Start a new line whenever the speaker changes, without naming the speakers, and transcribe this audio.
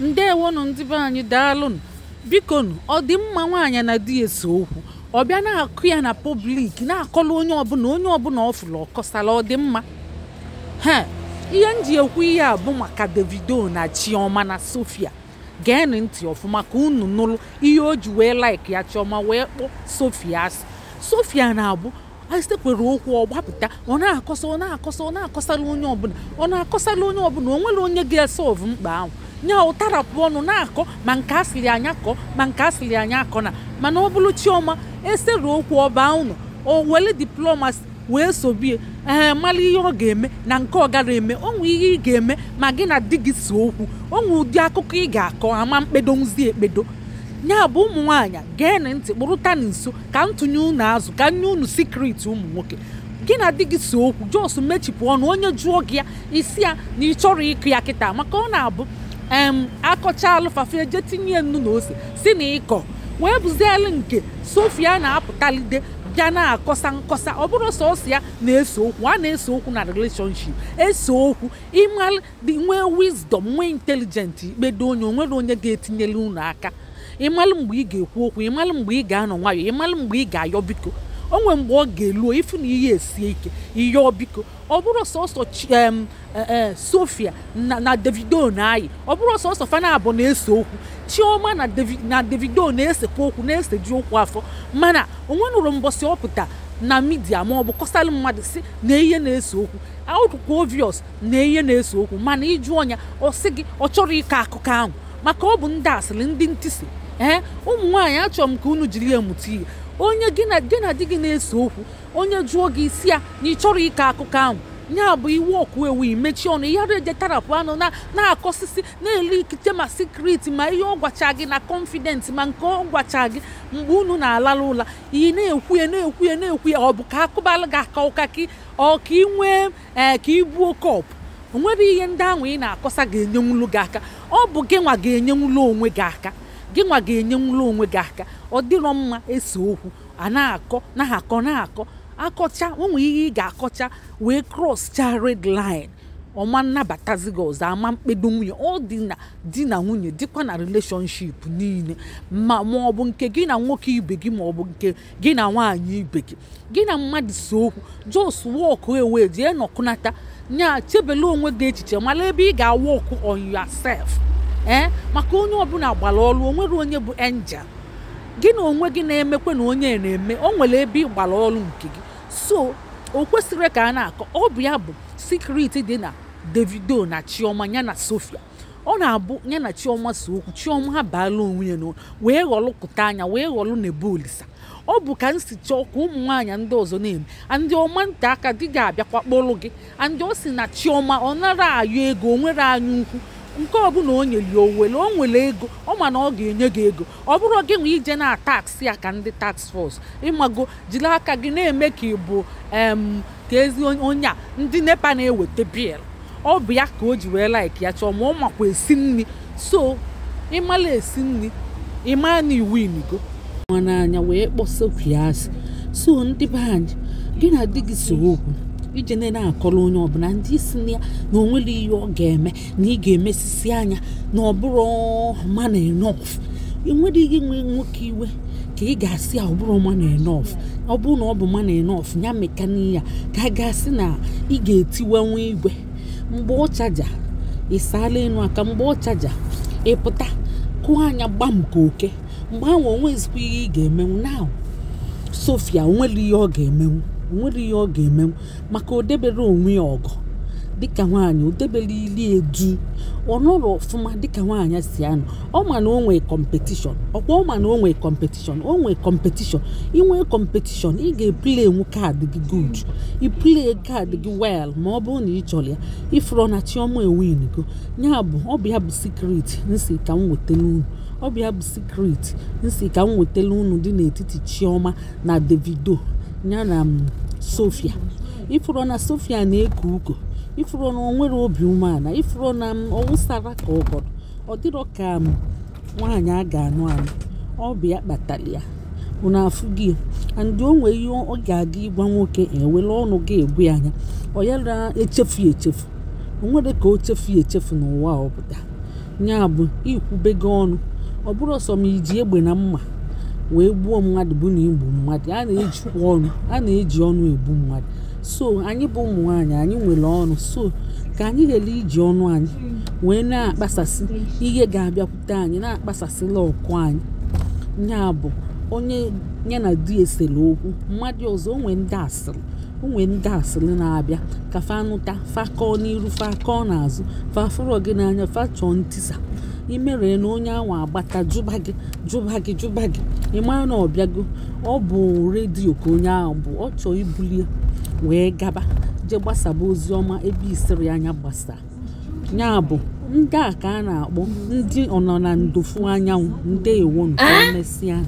ndewonu ndị be anyị daalụnụ bikonu ọ dị mma nwaanyị na di ya ese okwu ọ bịa na-akụ ya na pọblik na-akọlụ onye ọbụla onye ọbụla ọ fụrụ ọkọsala ọ dị mma ihe m ji ekwu ihe a bụ maka davido na chioma na sofia geenụ ntị ọfụma ka unu nụrụ ihe o ji wee laik ya chioma wee kpọọ sofia asị sofia na-abụ asitekwere okwu ọ gbapụta ọ na-akọsa ọ na-akọsa ọ na-akọsala onye ọbụla ọ na-akọsala onye ọbụla o nwere onye ga-ese ọvụ mkpa ahụ nya ụtarapụ ọnụ na-akọ ma nke asịrị anya kọ ma nke asịrị anya akọ na mana ọ bụrụ chioma esere okwu ọba unu o were diplomasi wee sobie ee eh, mara ihe ọ ga-eme na nke ọ gara eme onwe ihe ị ga-eme ma gị na di gị si okwu onwe ụdị akụkọ ị ga-akọ ama mkpedo nzi ekpedo nya bụ ụmụ nwaanyị gee na ntị kpụrụta na nso ka ntụnye unu azụ ka nye unu sikriti ụmụ nwoke gị na di gị si okwu jos mechipụ ọnụ onye jụọ gị ya isi ya na ị chọrọ ịkụ ya kịta maka ọ na-abụ akọcha alụfafia jee tinye nnu na ose si na ịkọ wee bụzielu nke sofia na-apụtalide bịa na-akọsa nkọsa ọ bụrụ sọsọ ya na-ese okwu a na-ese okwu na relationship ese okwu ịmalụ nwee wisdom nwee intelijent ikpedo onye onwere onye ga etinyela ụnụ aka ịmalụ mgbe ị ga-ekwu okwu ịmalụ mgbe ị ga-anọ nwayọọ ịmalụ mgbe ị ga-ayọ biko onwe mgbe ọ ga-eluo ịfụ na ihe esie ike ihe ọbiko ọ bụrụ sọsọ e, e, Sofia na Davido na-ayị ọ bụrụ sọsọ fana na-ese okwu Chioma na Davido na-esekwa okwu na-eseji okwu afọ mana onwe nụrụ mbọsị ọpụta na midia ma ọ bụ kọsalụ mmadụ si na ihe na-ese okwu aụkwa ovios na ihe na-ese okwu mana ịjụ ọnya ọ sị gị ọ chọrọ ịkọ akụkọ ahụ maka ọ bụ ndị asịrị ndị ntịsi ee ụmụ nwaanyị achọrọ m ka unu jiri ya mụta ihe onye gị na di gị na-ese okwu onye jụọ gị isi ya na ị chọrọ ịkọ akụkọ ahụ ya bụ iwe ọkụ ewu imechi ọnụ ya reje tarapụ anụ na-akọsisi na-ele ikite ma sikriti ma ihe ọ gwacha gị na kọnfident ma nke ọ gwacha gị mgbe unu na-alala ụla ị na-ekwu ya na-ekwu ya na-ekwu ya ọ bụ ka akụbala gị aka ụka gị ọ ka ị nwee ee ka ị buo kọpụ o nwere ihe ndị ahụ ị na-akọsa ga-enyenwulu gị aka ọ bụ gị nwa ga-enyenwulu onwe gị aka gị nwa ga-enye nwụrụ onwe gị aka ọ dịrọ mma ese okwu a na-akọ na-akọ na-akọ akọcha onwe ihe ị ga-akọcha wee cross cha red ọma nnabatazi gị ọzọ ama mkpedo nwunye ọ dị na di na nwunye dịkwa na relationship niile ma ma ọ bụ nke gị na nwoke ibe gị ma ọ bụ nke gị na nwaanyị ibe gị gị na mmadụ si okwu jos wọkụ ewe jee nọkụnata nya chebele onwe gị echiche mala ebe ị ga-awọkụ on yourself ee eh? maka onye ọbụla gbara ọrụ o nwere onye bụ enja gị na onwe gị na-emekwa na onye na-eme o nwere ebe ịgbara ọrụ nke gị so o kwesịrị ka a na-akọ ọ bụ ya bụ sikriti dị na davido na chioma ya na sofia ọ na-abụ ya na chioma so okwu chioma ha baala onwe ya n'ụwa wee ghọlụpụta anya wee ghọlụ na-ebu olisa ọ bụ ka m si chọọ ka ụmụ nwaanyị ndị ọzọ na-eme andị ọma nta aka di ga-abịakwa kpọrọ gị andị ọ si na chioma ọ nara ayụ ego o nwere anya ukwu nke ọbụla o nyere ya owele o nwere ego ọ ma na ọ ga-enye gị ego ọ bụrụ gị nwe ije na taksị ya ka ndị taks fọs ịmago jiri aka gị na-eme ka ị bụ ka ezi onye a ndị nepa na-eweta biya ọ bụ ya ka o ji wee laik ya chọọ ma ọ makwa esi nri so ịmala esi nri ịmaa na iwu imigo nwa anya wee kpọsokwu ya asị so ndị be anyị gị na di gị so okwu ije na-akọrọ onye ọbụla ndị isi na ya na onwere ihe ọ ga-eme na ị ga-emesisi anya na ọ bụrụ man enough enwere ihe nwe nwoke iwe ka ị ga-asị ya ọbụrụ man ọ bụrụ na ọ bụ man enough ya mekani ya ka a ga-asị na ị ga-etiwenwu igwe mgbe ọ chaja ị saala aka mgbe ọ chaja ịpụta kụọ anya gbam ka oke mgbe ahụ onwezikwa ihe ị ga-emenwu na sofia onwere ihe ọ ga-emenwu nwere ihe ọ ga-emenwu maka odebere onwe ya ọgụ dịka nwaanyị odebere ili edu ọ nọrọ ọfụma dịka nwaanyị si anọ ọ ma na o nwee kọmpetishọn ọkwa ọ ma na o nwee kọmpetishọn o nwee kọmpetishọn ị nwee kọmpetishọn ị ga-epule kaadị gị gud ipule kaadị gị wel ma ọ bụrụ na ị chọrọ ya ịfụrọ na chiọma enwenigo ya bụ ọ bụ ya bụ nsi ka m wetara unu bụ ya bụ nsi ka m wetara dị n'etiti chiọma na davido ya na mm, sofia ifuru na sofia na eku ugo ifuru na onwere obi umeala ifụrụ na ọwụsara mm, ka ọgọdọ ọ dịrọ ka mm, nwaanyị a ga-anụ anụ ọ bụ ya kpatara ya unu afụgị andị o nwere ihe ọ ga-aga ịgwa nwoke ewela ọnụ gị egbu anya ọ na echefu echefu nwere ka o chefu echefu n'ụwa ọbụla ya bụ ikwubego ọnụ ọ bụrụ ọsọ ma iji egbe na mma wee gbuo mmadụ bụ na igbu mmadụ a na-ejikwa ọnụ a na-eji ọnụ egbu mmadụ so anyị bụ ụmụ nwaanyị anyị nwere ọnụ so ka anyị ghele iji ọnụ anyị wee na-akpasasị ihe ga-abịakwute anyị na-akpasasịla ọkụ anyị nya bụ onye ya na di esere okwu mmadụ ọzọ onwe ndị asịrị onwe ndị asịrị na-abịa ka fanụta fakọọ n'iru fakọọ n'azụ fafụrọ gị n'anya fachọọ ntisa imere na onye ahụ agbata jụba gị jụba gị jụba gị ị mara na ọ ọ bụ redio ka onye ahụ bụ ọ chọọ ibulie wee gaba jee gbasaba ozi ọma ebe isiri anya gbasa ya bụ ndị a ka a na-akpọ ndị ọnọ na ndofu anyanwụ ndeewo nke ahụ.